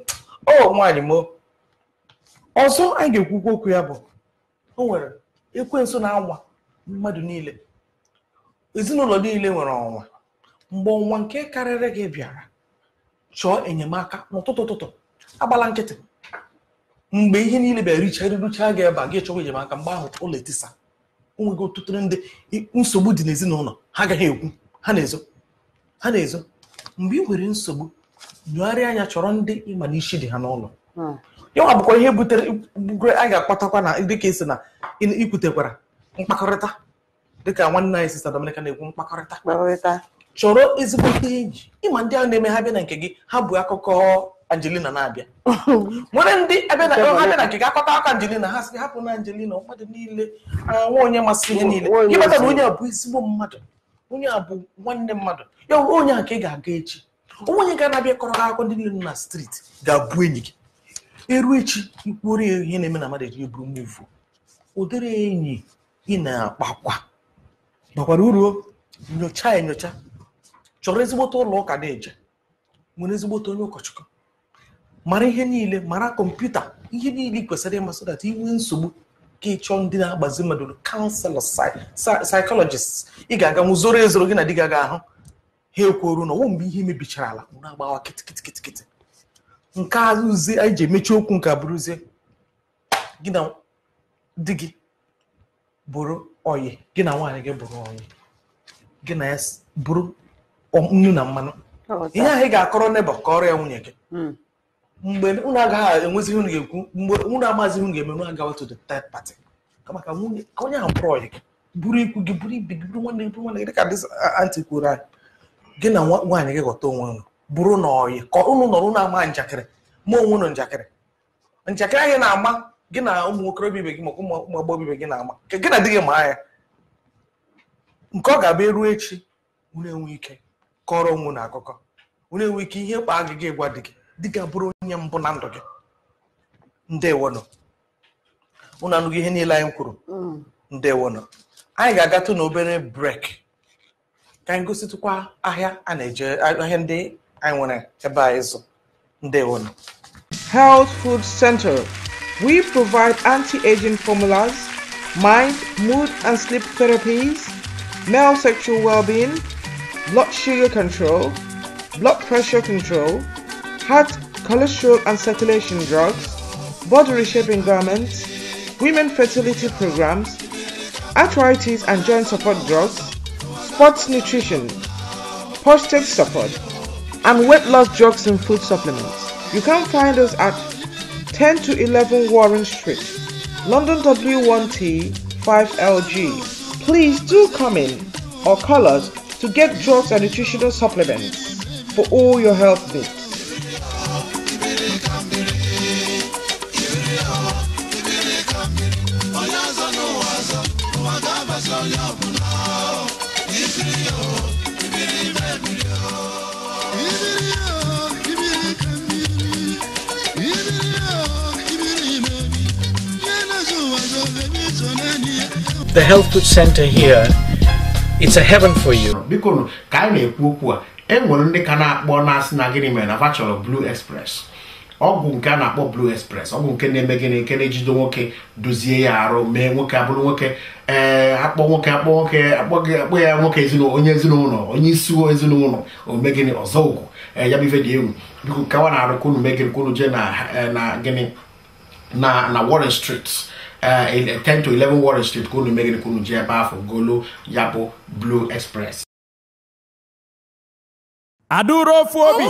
o nwaanyị m ọzọ anyị ga-ekwukwu okwu ya bụ o nwere ekwensu na-anwa mmadụ niile ezinụlọ niile nwere ọnwa mgbe ọnwa nke karịrị gị bịara chọọ enyemaka n'ụtụtụ ụtụtụ agbala nkịtị mgbe ihe niile bịara richara rucha gị ebe a gị chọwa enyemaka mgbe ahụ ụlọ etisa onwego ọtụtụ ndị nsogbu dị n'ezinụlọ ha agaghị ekwu ha na-ezo ha na-ezo mgbe ị nwere nsogbu nyụgharịa anya chọrọ ndị ịma na isi dị ha n'ụlọ hmm. yanwa bụkwa ihe butere a ga-akpatakwa na dịka esi na ikwutekwara mkpakọrịta dịka nwanne anyị sista Dominica na-ekwu mkpakọrịta chọrọ ezigbo ihe iji ịma ndị ahụ na-eme ha bịa na nke gị ha bụ akụkọ Angelina na-abịa nwere ndị ebe na ha bịa na nke gị akọta aka Angelina ha sị hapụ na Angelina mmadụ niile nwa onye masị ihe niile ịmata na onye a bụ ezigbo mmadụ onye a bụ nwanne mmadụ ya onye a ka ị ga-aga echi onwe onye ga-anabịa kọrọ akụkọ ndị niile na striti ga-abụ enyi gị eru echi ikwuru ihe na-eme na mmadụ eji buru muvu ụdịrị enyi ị na-akpakwa bakwara uru nyocha enyocha chọrọ ezigbote ụlọ ụka na-eje nwere ezigbote onye ụkọchukwu mara ihe niile mara kọmputa ihe niile kwesịrị ịmasị dat inwe nsogbu ka ịchọọ ndị na-agbazi mmadụ kanselọ saịkọlọjist ị ga-aga nwụ zoro ezoro gị na di gị aga ahụ ha ekwuoru na ọwụ mgbe ihe mebichara ala na-agbawa kịtịkịtịkịtị nke azụzi anyị ji emechi okwu nke abụrụzie gị na di gị bụrụ oyi gị na nwaanyị gị bụrụ oyi gị na ya bụrụ nnu na mmanụ ihe ahụ ị ga-akọrọ neba ka ọrụ ya nwunye gị hmm. mgbe unu agaghị enwezi unu ga-ekwu mgbe unu amazighị unu ga-eme unu agawa to the third party maka onye ahụ bụrụ oyi gị bụrụ ikwu gị bụrụ ibi gị bụrụ nwanne gị bụrụ nwanne gị dịka dis anti kwuru anyị gị na nwaanyị gị ghọta onwe unu bụrụ na ọyị ka ụnụ nọrọ ụnụ ama njakịrị ma onwe ụnụ njakịrị njakịrị anyị na-ama gị na ụmụ okorobịa ibe gị maka ụmụ agbọghọ ibe gị na-ama gị na dị gị maa ya nke ọ ga-abịa eruo echi ụnụ ike kọrọ onwe na akụkọ ụnụ ike ihe kpaa gị gị gwa di gị dị gị abụrụ onye mbụ na ndụ gị ndewonụ ụnụ anụghị ihe niile anyị kwuru mm. ndewonụ anyị ga-agatụ na obere brek ka anyị gosi gositụkwa ahịa a na-eje ahịa ndị Aiwune Ebaezu Ndeonu. Health Food Center. We provide anti-aging formulas, mind, mood and sleep therapies, male sexual well-being, blood sugar control, blood pressure control, heart, cholesterol and circulation drugs, body reshaping garments, women fertility programs, arthritis and joint support drugs, sports nutrition, prostate support, and weight loss drugs and food supplements. You can find us at 10 to 11 Warren Street, London W1T 5LG. Please do come in or call us to get drugs and nutritional supplements for all your health needs. the health food center here it's a heaven for you. biko ka anyị na-ekwu okwu a enwere ndị ka na-akpọ na-asị na gịnị mere na fa chọrọ blue express ọgwụ nke a na-akpọ blue express ọgwụ nke na-eme gịnị nke na-ejido nwoke dozie ya arụ mee nwoke abụrụ nwoke ee akpọ nwoke akpọ nwoke akpọ ya nwoke ezinụlọ onye ezinụlọ onye isi ezinụlọ omegịnị ọzọ ugwu ya bụ dị egwu biko kawa na-arụ ka unu megịrị ka jee na gịnị na na Warren Street 10 uh, uh, to 11 Warren Street Kunu unu kunu ka unu golo Yabo Blue Express adụrụ ofu obi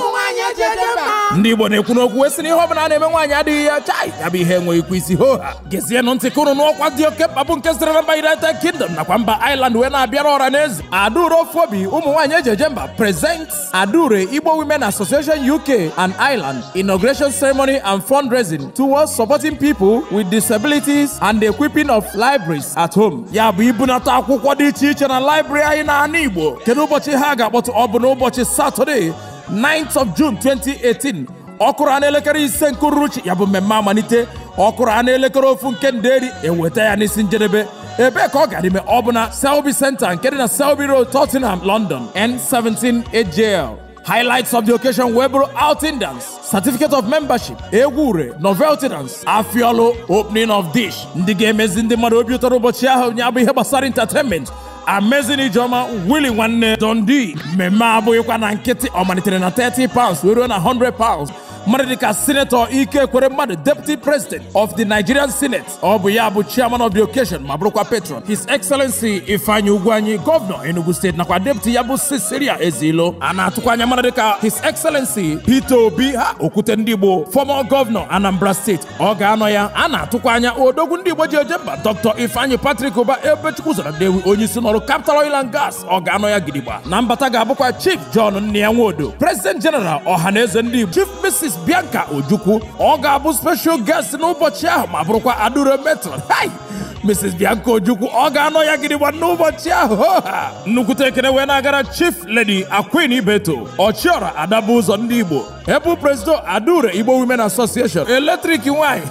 ndị Igbo na-ekwu n'okwu sị na ihe ọbụla na-eme nwaanyị adịghị ya chai ya bụ ihe enweghị ikwu isi hoha gezienụ ntị ka n'ọkwa dị oke mkpa bụ nke sitere na mba United Kingdom nakwa mba iland wee na-abịara ọra n'eze. adụrụ ofu obi ụmụ nwaanyị eji mba presents adure Igbo Women Association UK and Ireland inauguration ceremony and fundraising towards supporting people with disabilities and the equipping of libraries at home ya bụ ibunata akwụkwọ dị iche iche na library anyị na ana Igbo kedu ụbọchị ha ga-akpọtụ ọ bụ n'ụbọchị Satọde Saturday 9th of June 2018 ọ kụrụ anụ elekere ise nke uruchi ya bụ mmemme amalite ọ kụrụ anụ elekere ofu nke nderi eweta ya n'isi njedebe ebee ka ọ gara ime ọ bụ na Selby Centre nke dị na Selby Road Tottenham London N17 AJL Highlights of the occasion were outing dance, certificate of membership, egwure, novelty dance, afiolo, opening of dish. Ndị ga-emezi ndị mmadụ obi ụtọ ụbọchị ahụ ya ihe gbasara entertainment Amazing Ijoma Willie Nwanne Dundee mmemme abụghịkwa na nkịtị ọmalitere na 30 pounds were na 100 pounds mmadụ dịka sinetọ ike kwere mmadụ deputi president of the nigerian senate ọ bụ ya bụ chiaman of the occasion ma bụrụkwa patron his excellency ifeanyi ugwuanyi gọvanọ enugu steeti nakwa deputi ya bụ cecilia ezilo a na-atụkwa anya mmadụ ka his excellency peter obi ha okwute ndị igbo former gọvanọ anambra steeti ọ ga-anọ ya a na-atụkwa anya odogwu ndị igbo ji eje mba dr ifeanyi Patrik ụba ebechukwu zara dewi onye isi n'ọrụ capital oil gas ọ ga-anọ ya gidigba na mbata ga-abụkwa chief john nne ya president general ọha na eze ndị igbo chief Miss Bianca Ojukwu ọ ga-abụ special guest n'ụbọchị ahụ ma bụrụkwa adure metron Mrs. Bianca Ojukwu ọ ga-anọ ya gịnị gba n'ụbọchị ahụ nnukwute ekele wee na-agara Chief Lady Akwin beto Ọchịọra Adabụ Ụzọ Ndị Igbo ebu Presido Adaure Igbo Women Association eletrik nwanyị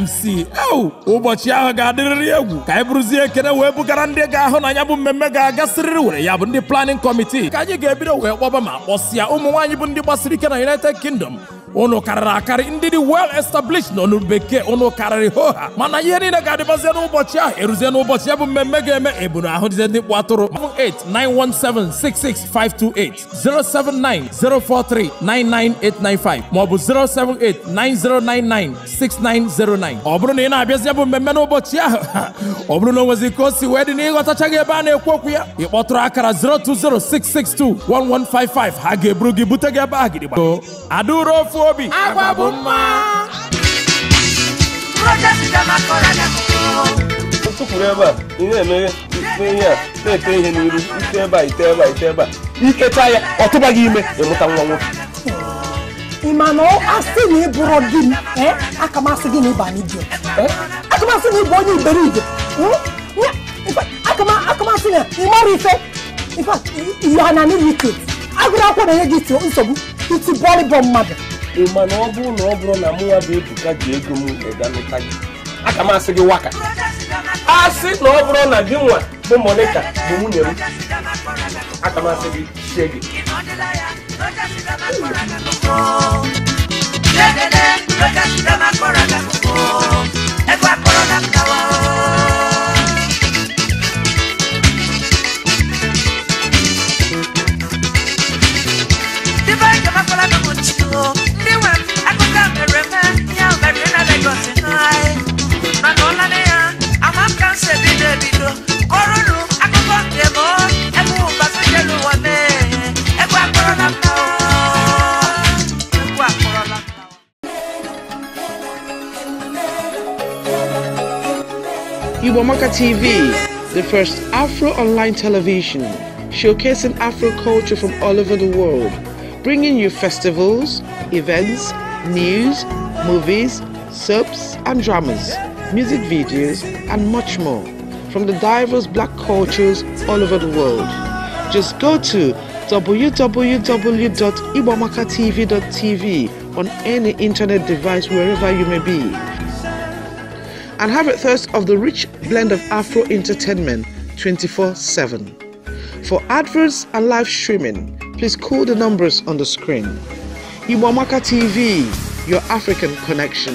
MC oh! ụbọchị ahụ ga-adịrịrị egwu ka anyị bụrụzie ekene wee bugara ndị ga-ahụ na ya bụ mmemme ga-agasịrịrị were ya bụ ndị planning committee ka anyị ga-ebido wee kpọba ma kpọsịa ụmụ nwaanyị bụ ndị gbasiri ike na United Kingdom unu karịrị akarị ndị dị wel established na olu bekee unu karịrị hoha mana ihe niile ga-adịbazie n'ụbọchị ahụ eruzie n'ụbọchị ya bụ mmemme ga-eme eburu ahụ dize ndị kpụ atụrụ 07917665228 maọbụ 07890996909 ọ bụrụ na ị na-abịazi bụ mmemme n'ụbọchị ahụ ọ bụrụ na o nwezi ka o si wee dị na ịghọtachaghị ebe a na-ekwu okwu ya ị kpọtụrụ akara 02066211155 ha ga-eburu gị bute gị ebe a gidigba adauro ofu obi agwa bụ mma tụpụrụ ebe a ị na-emeghe ite ihe a na-ete ihe n'iru ite ebe a ite ebe a ite ebe a ikecha ya ọ tụba gị ime ịmụta nwa nwoke ị ma na asị na ị bụrụ di m akamasị gị na ịba n'idio akamasị na ịbụ onye iberibe akamasị na ịmara ife ife ihe ha ike agụrụ akwụkwọ na-enye gị nsogbu iti bọlịbọ mmadụ ị ma na ọ bụrụ na ọ bụrụ na mụnwa bụ ebuka ji ego m ịganụta gị aka m asị gị waka asị na ọ bụrụ na gị nwa bụ monita bụ nwunye m aka m asị gị sie gị Ẹgbẹ́ akọ̀rọ̀ náà kàwọ́. TV, the first Afro online television, showcasing Afro culture from all over the world, bringing you festivals, events, news, movies, soaps and dramas, music videos, and much more from the diverse black cultures all over the world. Just go to www.ibomaka.tv.tv on any internet device wherever you may be and have a thirst of the rich blend of Afro entertainment 24 7. For adverts and live streaming, please call the numbers on the screen. Iwamaka TV, your African connection.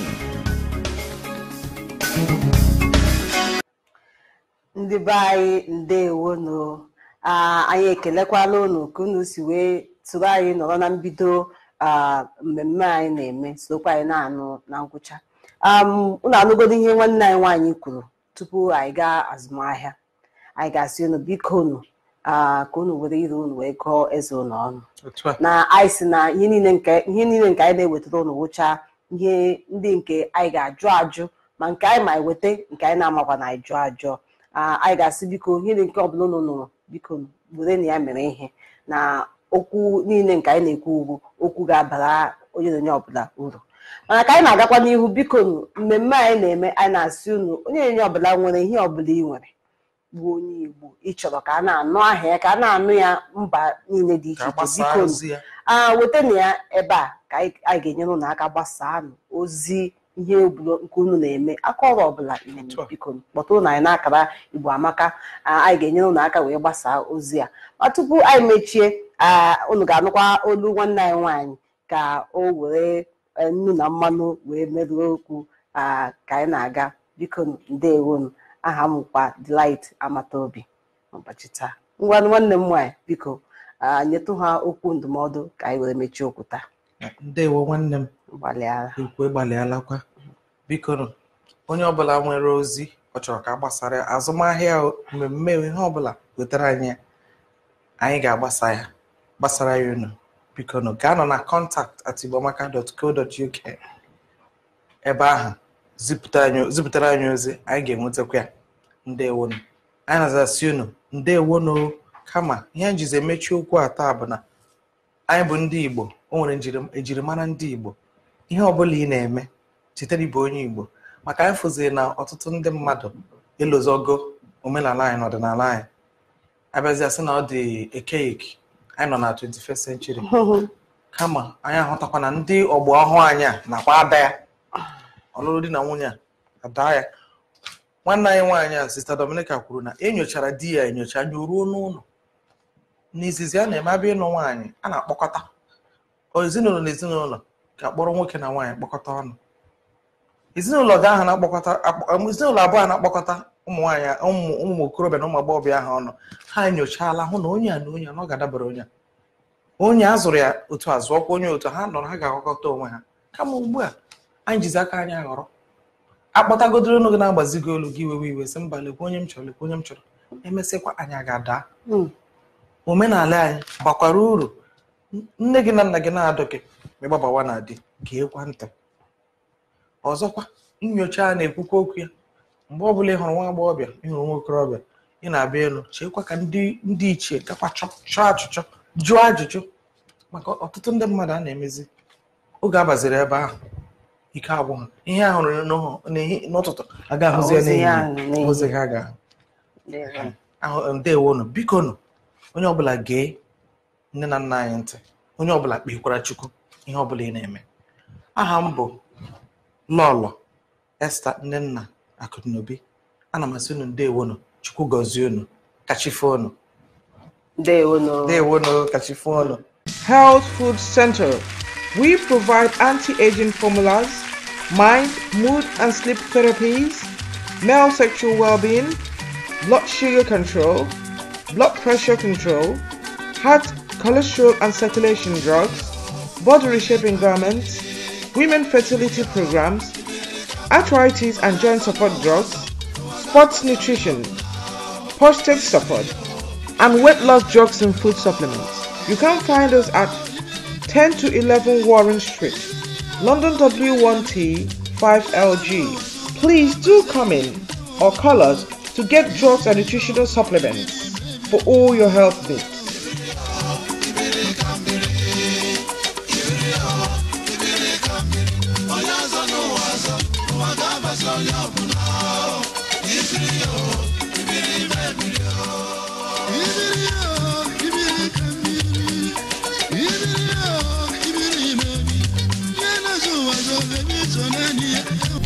Ndibai be anyị ndewonu anyị ekelekwala unu ka unu si wee tụrụ anyị nọrọ na mbido mmemme anyị na-eme sokwa anyị na-anụ na ngwụcha ụlọ um, anụgodo ihe nwanne anyị nwaanyị kwuru tupu anyị gaa azụmahịa anyị ga-asị unu biko unu ka unu were ire unu wee gụọ eze unu ọnụ na anyị na ihe niile nke anyị na-ewetara unu wụchaa ihe ndị nke anyị ga-ajụ ajụ ma nke anyị ma eweta nke anyị na-amakwa na anyị jụọ ajụọ anyị ga-asị biko ihe nke ọbụla unu nụrụ biko were na ya mere ihe na okwu niile nke anyị na-ekwu ugwu okwu ga-abara onye na onye ọbụla uru mana ka anyị na-agakwa n'ihu biko mmemme anyị na-eme anyị na-asị unu onye enye ọbụla nwere ihe ọbụla ị nwere bụ onye igbo ịchọrọ ka a na-anụ ahịa ya ka a na-anụ ya mba niile dị iche iche biko weta na ya ebe a ka anyị ga-enyere unu aka nụ ozi ihe obodo nke unu na-eme aka ọrụ ọbụla na-eme kpọtụrụ na anyị n'akara igbo amaka anyị ga-enyere unu aka wee gbasaa ozi a ma tupu anyị mechie ụnụ ga-anụkwa olu nwanne anyị nwaanyị ka o were nnu na mmanụ wee merụọ okwu ka anyị na-aga biko ndewonu aha m kwa Delight Amataobi n'ụbọchị taa ngwanụ nwanne m nwaanyị biko nyetụ ha okwu ndụmọdụ ka anyị wee mechie okwu taa ndewo nwanne m ikwe gbalịalakwa biko onye ọbụla nwere ozi ọ chọrọ ka gbasara azụmahịa mmemme ihe ọbụla wetara anyị anyị ga-agbasa ya gbasara ya unu bikonu gaa nọ na kọntaktị at igboamaka.co.uk ebe ahụ zipụtara anyị ozi anyị ga-enwetakwa ya ndewonu anyị na-azasị unu ndewonu kama ihe anyị jizi emechi okwu a bụ na anyị bụ ndị igbo o nwere ejirimara ndị igbo ihe ọbụla ị na-eme chitere ibe onye igbo maka anyị fụziri na ọtụtụ ndị mmadụ ịlụzogo omenala anyị na ọdịnala anyị abịazịa asị na ọ dị ekeiki anyị nọ na 21st century kama anyị ahụtakwa na ndị ọgbọ ọhụụ anyị a nakwa ada ya ọlụlụ di na nwunye a ada ya nwanne anyị nwaanyị a sista Dominica kwuru na enyochara di ya enyocha anya ruo n'ụlọ n'izizi a na-eme abịa ịnụ nwaanyị a na-akpọkọta ezinụlọ na ezinụlọ ga-akpọrọ nwoke na nwaanyị kpọkọta ọnụ ezinụlọ abụọ a na-akpọkọta ụmụ nwaanyị ụmụ okorobịa na ụmụ agbọghọbịa ahụ ọnụ ha nyochala hụ na onye a na onye a na ọ ga-adabara onye a onye a zụrụ ya otu a zụọkwa onye otu ha nọrọ ha ga-agwakọta onwe ha kama ugbu a anyị jizi aka anyị aghọrọ akpọtagodoro unu gị na-agbazigo olu gị iwewe iwe sị mba lekwa onye m chọrọ lekwa onye m chọrọ emesịkwa anyị ga-ada hmm. omenala anyị gbakwara uru nne gị na nna gị na-adụ gị ma ịgbabawa na di gee kwa ntị ọzọkwa nyocha na-ekwukwa okwu ya mgbe ọbụla ị hụrụ nwa agbọghọbịa ị hụrụ nwa okorobịa ị na-abịa elu cheekwa ka ndị ichie gakwa chọọ achụchọ jụọ ajụjụ maka ọtụtụ ndị mmadụ a na-emezi oge abaziri ebe ahụ ike agwụ ha ihe ahụrụ n'ụtụtụ aga ahụzie n'ehihie ha ga ahụ biko nụ onye ọbụla gee nne na nna anyị ntị onye ọbụla kpekwara chukwu ihe ọbụla ị na-eme aha m bụ lọlọ esta nna. akụnaobi ana m asị unu ndewonu chukwu gọzie unu kachifo unu ndewonu kachifo health food center we provide anti-aging formulas mind mood and sleep therapies male sexual well-being blood sugar control blood pressure control heart cholesterol and circulation drugs body reshaping garments women fertility programs arthritis and joint support drugs, sports nutrition, prostate support, and weight loss drugs and food supplements. You can find us at 10 to 11 Warren Street, London W1T 5LG. Please do come in or call us to get drugs and nutritional supplements for all your health needs.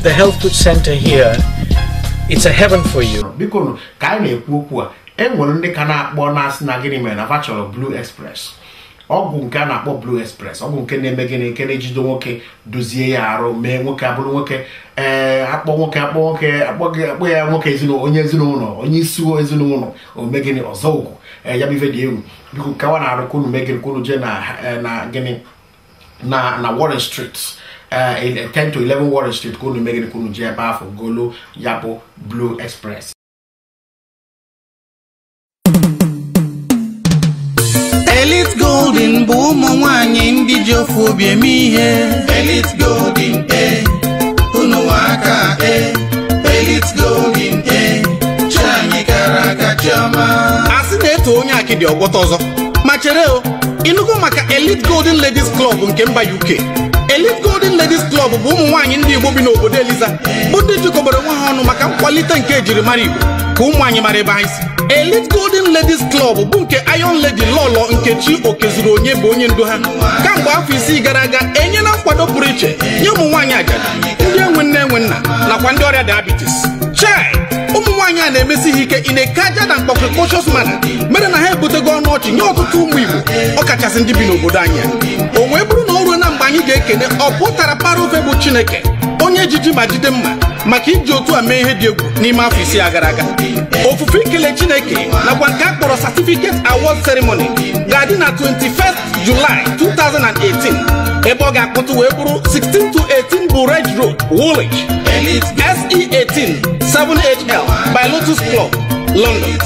the health food center here it's a heaven for you biko ka anyị na-ekwu okwu a enwere ndị ka na-akpọ na-asị na gịnị mere na fa chọrọ blue express ọgwụ nke a na-akpọ blue express ọgwụ nke na-eme gịnị nke na ejide nwoke dozie ya arụ mee nwoke abụrụ nwoke ee akpọ nwoke akpọ nwoke akpọ ya nwoke ezinụlọ onye ezinụlọ onye isi ezinụlọ ome gịnị ọzọ ugwu ya bụ ife dị egwu biko kawa na-arụ kunu mee gịnị kunu jee na gịnị na na Warren Street Uh, in 10 uh, to 11 Warren Street kunu megide kunu ji ebe ahụ golu ya bụ Blue Express Elite Golden bụ ụmụ nwanyị ndị ji obi eme ihe Elite Golden e unu aka e Elite Golden e anyị gara aga chiọma a sị na etu onye akịdị ọgwọta ọzọ ma chere o ịnụgo maka Elite Golden Ladies Club nke mba UK Elite Golden Ladies Club bụ ụmụ nwaanyị ndị Igbo bi n'obodo Eliza bụ ndị jikọbara onwe ha ọnụ maka nkwalite nke ejirimara Igbo ka ụmụ anyị mara ebe anyị si Elite Golden Ladies Club bụ nke Iron Lady Lọlọ chi Okezuru onye bụ onye ndu ha kamgbe afọ isii gara aga enyela nkwado pụrụ iche nye ụmụ nwaanyị ajadu ndị enwe nne enwe nna nakwa ndị ọrịa diabetes chai ụmụ nwaanyị a na-emesi ha ike ị na-eke na mkpọkrịkọchọs mana mere na ha ebutego ọnụ ọchị nye ọtụtụ ụmụ Igbo ọ kachasị ndị bi n'obodo anyị o bụrụ anyị ga-ekene ọ para ofe bụ Chineke onye jiji ma jide mma maka iji otu a mee ihe dị egwu n'ime afọ isii a gara aga ofufe ikele Chineke nakwa nke a kpọrọ certificate award ceremony ga-adị na 21 July 2018 ebe ọ ga-akpọtụ wee bụrụ 16 to 18 bụ Red Road Woolwich e SE18 7HL by Lotus Club London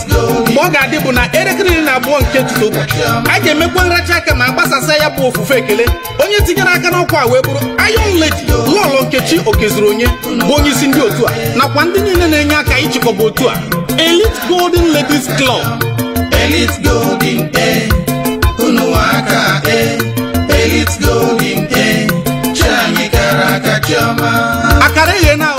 mgbe ọ ga-adị bụ na elekere iri na abụọ nke tụtụ ụbọchị a ga-emekwa nracha aka ma gbasasị ya bụ ofufe ekele onye tinyere aka n'ọkwa a wee bụrụ Iron Lady nke Nkechi Okezuru Onye bụ onye isi ndị otu a nakwa ndị niile na-enye aka ịchịkọba otu a Elite Golden Ladies Club e, e. e, akara eghe na